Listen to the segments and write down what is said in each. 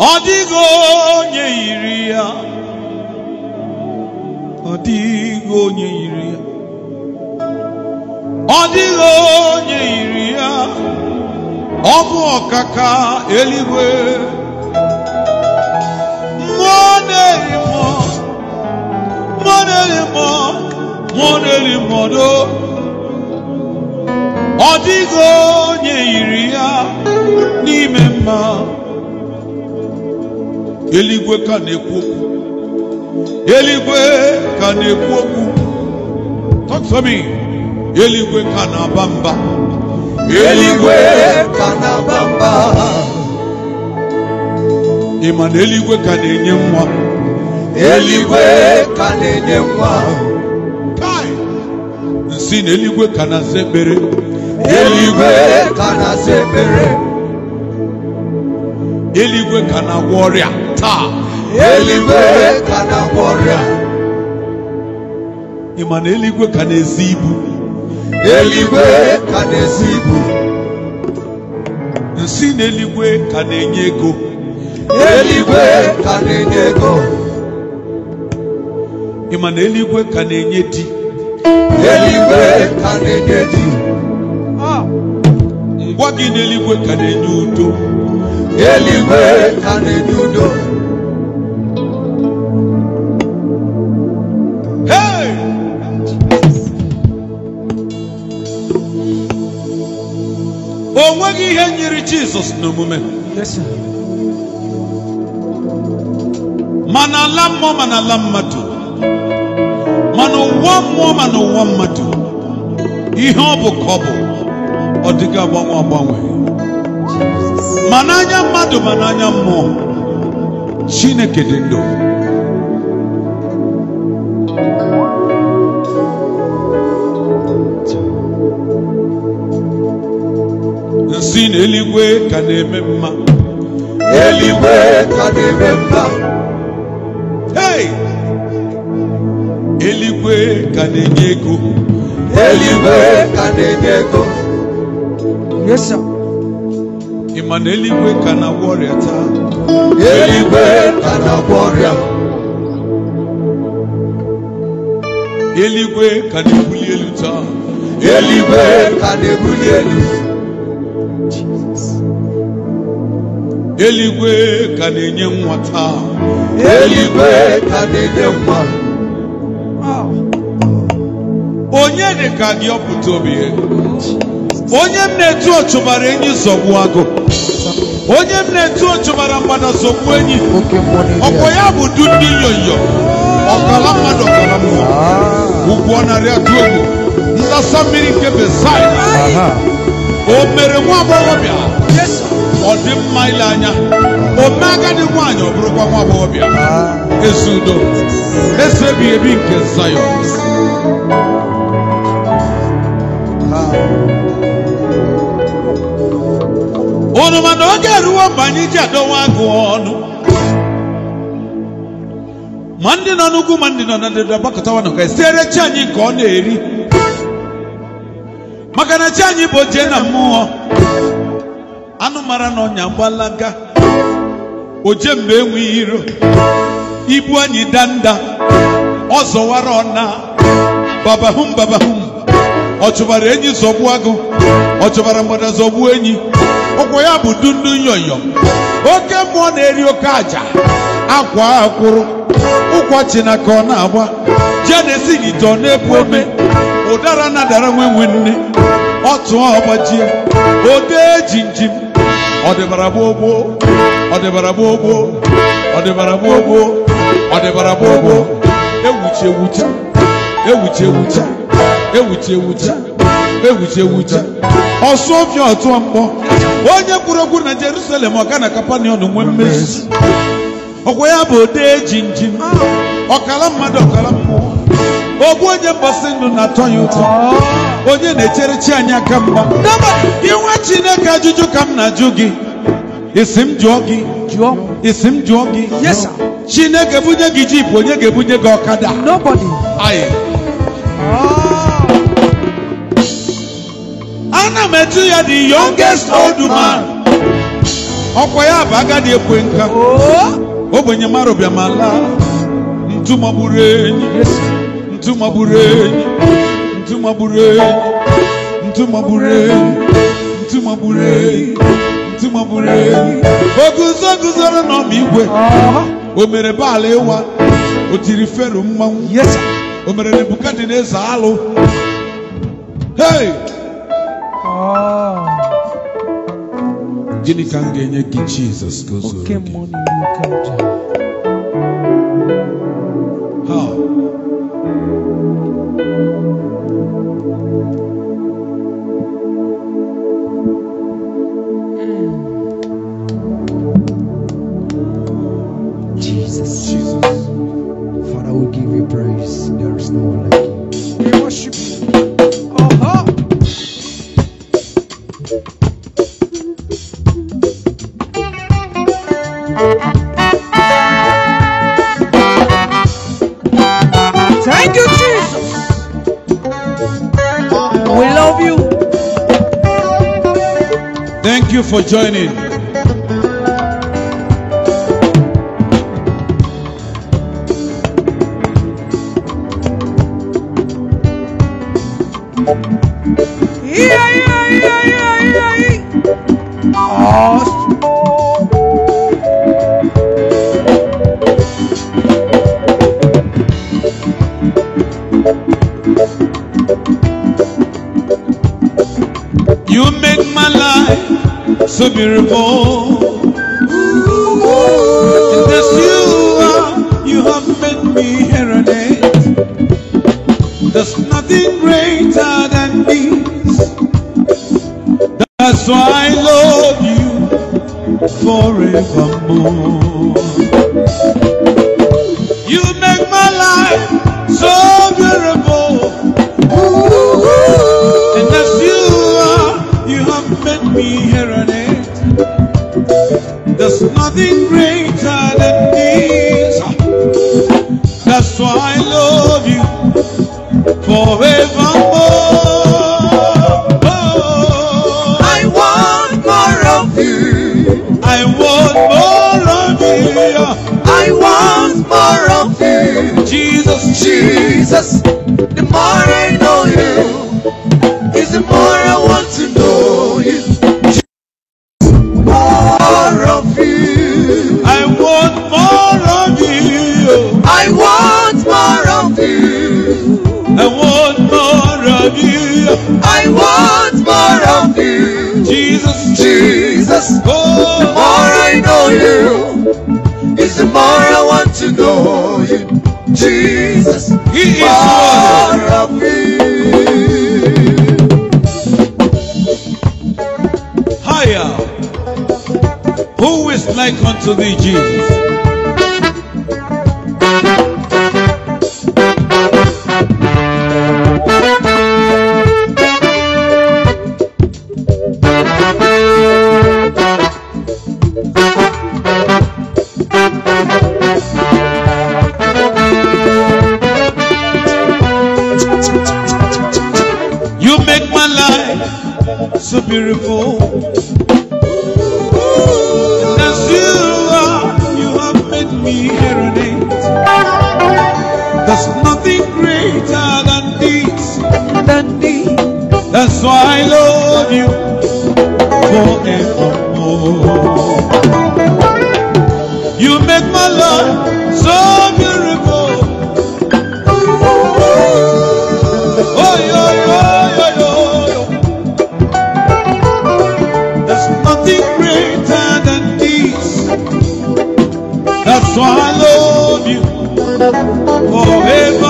ọ dịghị onye yiri ya ọ dịghị onye yiri ya ọ dịghị onye yiri ya ọ bụ ọkaka eluigwe mmụọ na-eri mmụọ mmụọ na-eri mmụọ mmụọ na-eri mmụọ ọ dịghị onye yiri ya n'ime mma eluigwe ka na-ekwu okwu eluigwe ka na-ekwu okwu talk to me eluigwe ka na-aba mba eluigwe ka na-aba mba ị ma na eluigwe ka na-enye nwa eluigwe ka na-enye nwa nsị na eluigwe ka na-asa ekpere eluigwe ka na-asa ekpere eluigwe ka na-agwọ ọrịa vita eliweka na bora Imane eluigwe ka n'ezi kanezibu Nsine ka kanenyego ibu kanenyego Imane eluigwe ka na-enye ego ah. eluigwe ka na-enye ka di ka udo o nweghị ihe nyere jizọs n'omume ma ala mmụọ mana ala mmadụ mana n'ụwa mmụọ mana n'ụwa mmadụ ihe ọ bụ ka ọ bụ ọ dịghị agbanwe agbanwe ma n'anya mmadụ ma n'anya mmụọ chineke dị ndụ si n'eluigwe ka na-eme mma eluigwe ka na-eme mma hey eluigwe ka na-enye ego eluigwe ka na-enye ego yes sir ị ma na eluigwe ka na-agwọ ọrịa taa eluigwe ka na-agwọ ọrịa eluigwe ka na-ebuli elu taa eluigwe ka na-ebuli elu eluigwe ka na-enye nwa taa ah. eluigwe ka na-enye nwa onye dị ka gị ọpụta obi onye m na-etu ọchụ enyi zọgbu agụ onye m na-etu ọchụ mara mgbada zọgbu enyi ọkwa ya bụ du ndị yoyo ọkala mmadụ ọkala mmụọ ah. ugwu narị atụ egwu ndasa mmiri nke bezai o mere nwa agbọghọbịa ọdị mma ile anya ome agadi nwaanyị ọ bụrụkwa nwa agbọghọbịa ah. ezi udo ezi ebighị ebi nke zayọn ah. unu mana oge eruwo mgbe anyị ji adọwa agụ ọnụ ma ndị nọ n'ugwu ma ndị nọ na ndịda gbakọtawa na e siere chi anyị nke ọ na-eri maka na chi anyị bụ oje na mmụọ anụ mara na ọnya gbalaga oje mgbe enweghị iro ibu anyị danda ọ zọwara ọna babahum babahum ọ chụbara enyi zọgbu agụ ọ chụbara mgbada zọgbu enyi ụkwụ ya bụ dundu nyoyo oke mmụọ na-eri oke aja akwa akwụrụ ụkwa chinaka ọ na-agba jenesi gite ọ na-ebu ome ụdara na dara nwe nwe nne ọ tụọ ọgbajie ode jinjim Ọ gbogbo ọdịbara gbogbo ọdịbara gbogbo ọdịbara gbogbo ewuchi ewuchi ọtụọ mkpọ onye kwuru okwu na Jerusalem ọga na kapanion nwee mmezi ọkwa ya bụ odee jinjin ọkala mmadụ ọkala mmụọ ogbu onye mgbasi ndụ na-atọ ya ụtọ onye na-echere chi anyị aka mgba inwe chineke ajụjụ ka m na-ajụ gị isi m jụọ gị jụọ isi m jụọ gị yes sir chineke bunye gị jipụ onye ga-ebunye gị ọkada nobody anyị ah. ana m etu ya the youngest old man ọkwa ya bụ agadi ekwe nka ogbenye oh. mara bịa ma laa ntu magburu enyi ntu magburu enyi ntumabure ntumabure ntumabure ntumabure oguzo guzoro n'ọma igwe o mere baala ịwa o tiri fero mmanwụ o mere nebukadneza alụ hei ah. gịnị ka m ga-enye gị jizọs ka o zuru gị Thank you, Jesus. We love you. Thank you for joining. so beautiful. Jesus, the more I know you, is the more I want to know you. More of you. I want more of you. I want more of you. I want more of you. I want more of you. Jesus, Jesus, oh. the more I know you, is the more I want to know you. Jesus. He is worthy. Higher. Who is like unto thee, Jesus? so beautiful So I love you forevermore.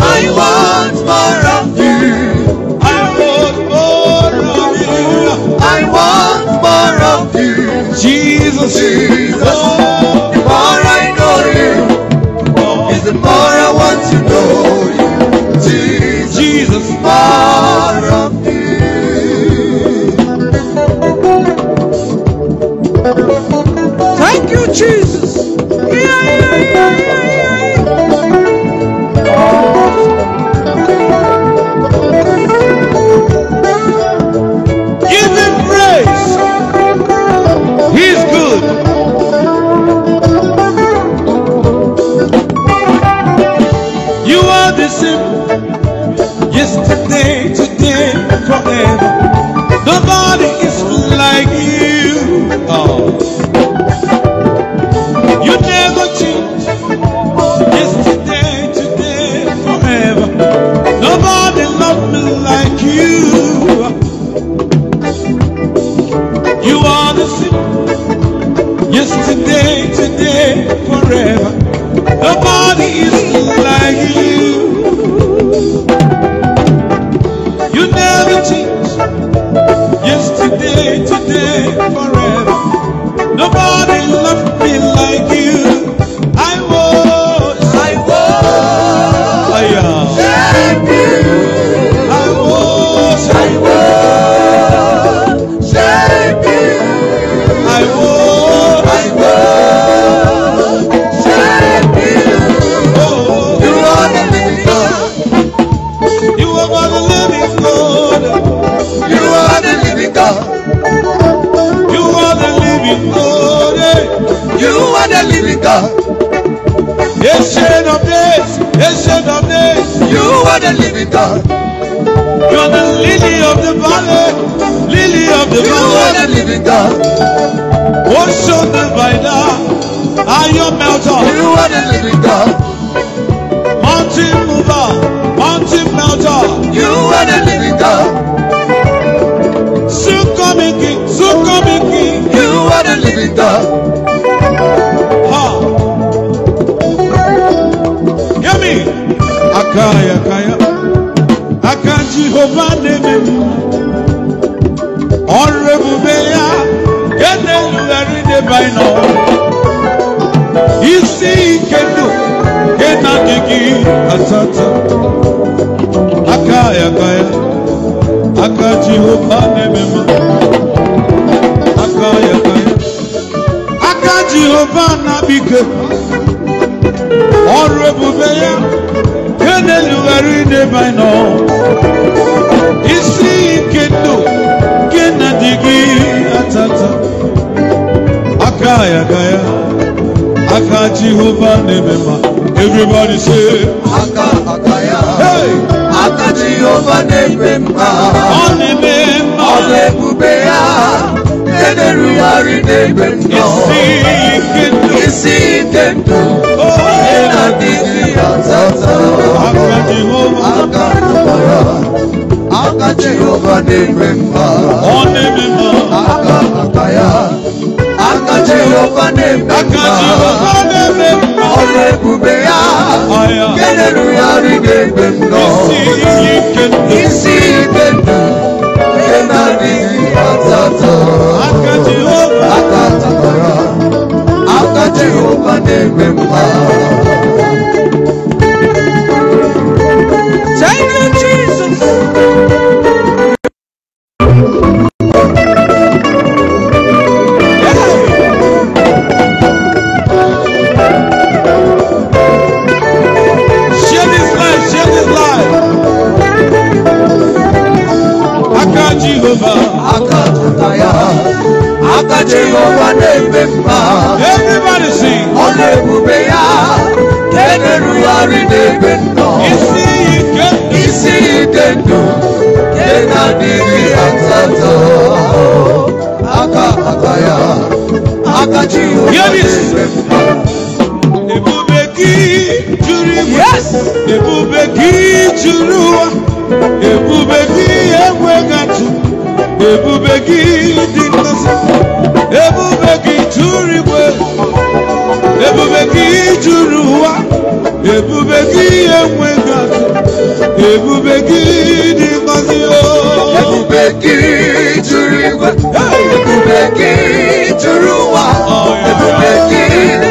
I want more of you. I want more of you. I want more of you. Jesus. are the living God. You are the lily of the valley, lily of the you valley. You are the living God. Oh, show the rider, are your melter. You are the living God. Mountain mover, mountain melter. You are the living God. Soon coming king, soon coming king. You are the living God. Ha. Hear me. Akaya jehova neme ọrụ ebube ya nke na-erugharị deba ịnọ isi ike ndụ nke na-adịghị asatọ aka ya aka ya aka jehova neme m aka ya aka ya aka jehova na ọrụ ebube ya na-elughara ideba nọ isi nke ndụ nke na dị gị atata aka ya ya aka jehova na-eme ma everybody say aka aka ya aka jehova na-eme mma ọ na-eme mma ọ na-ebube ya ederugharị n'ebe nnọ isi ike ndụ ihe na-adịghị azata aka jụbara aka jehova na-eme mma aka maka ya aka jehova na-eme mma ọrụ ebube ya nke na isi ike Akatato, Akati Oba, Akati Bara, Akati Oba Nebe. ebube everybody sing ọ ya na-emerụgharị n'ebe nnọ isi ike ndụ nke Kena diri asatọ aka aka ya aka Jehova na-eme juru igwe juru juru igwe ebube gị juru ụwa ebube gị enweghị atụ ebube gị dị ngọzi o ebube gị juru igwe ebube gị juru ụwa ebube gị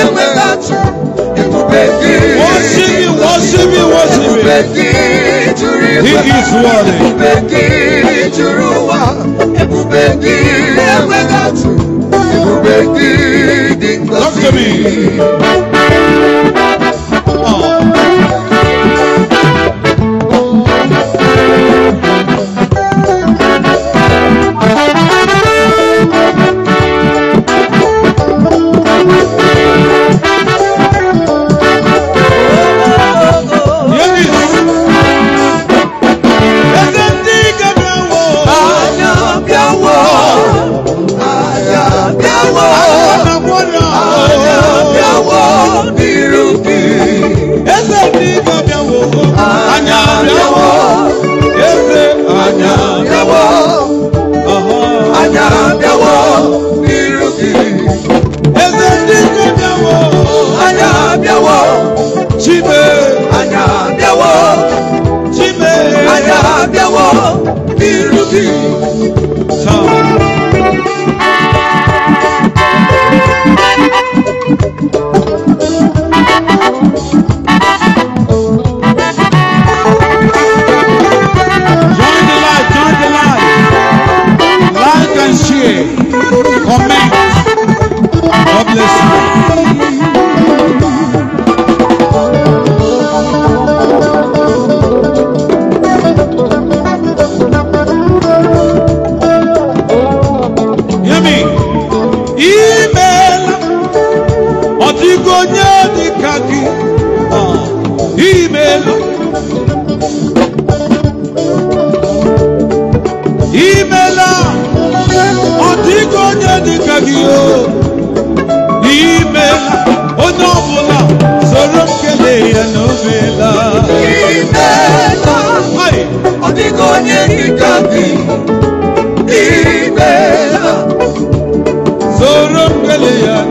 enweghị atụ ebube gị wọsịmị wọsịmị wọsịmị ebube gị juru igwe ebube gị juru ụwa ebube gị enweghị atụ Ibùgbé gidi lọ aqui. Ah, e melo. E mela. Antigo onde de cagio. E mela. O novo lá. Sorum que leia novela. E mela. Ai. Antigo onde de cagio. E mela. Sorum novela.